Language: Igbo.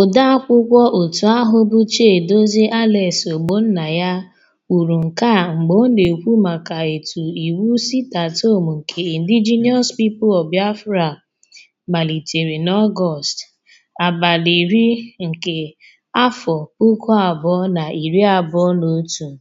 Odeakwụkwọ otu ahụ bụ Chiadozie Alex ya kwuru nke a mgbe ọ na-ekwu maka etu iwu sitatom nke Indigenous People of Biafra malitere n'Ọgọst 10, 2021.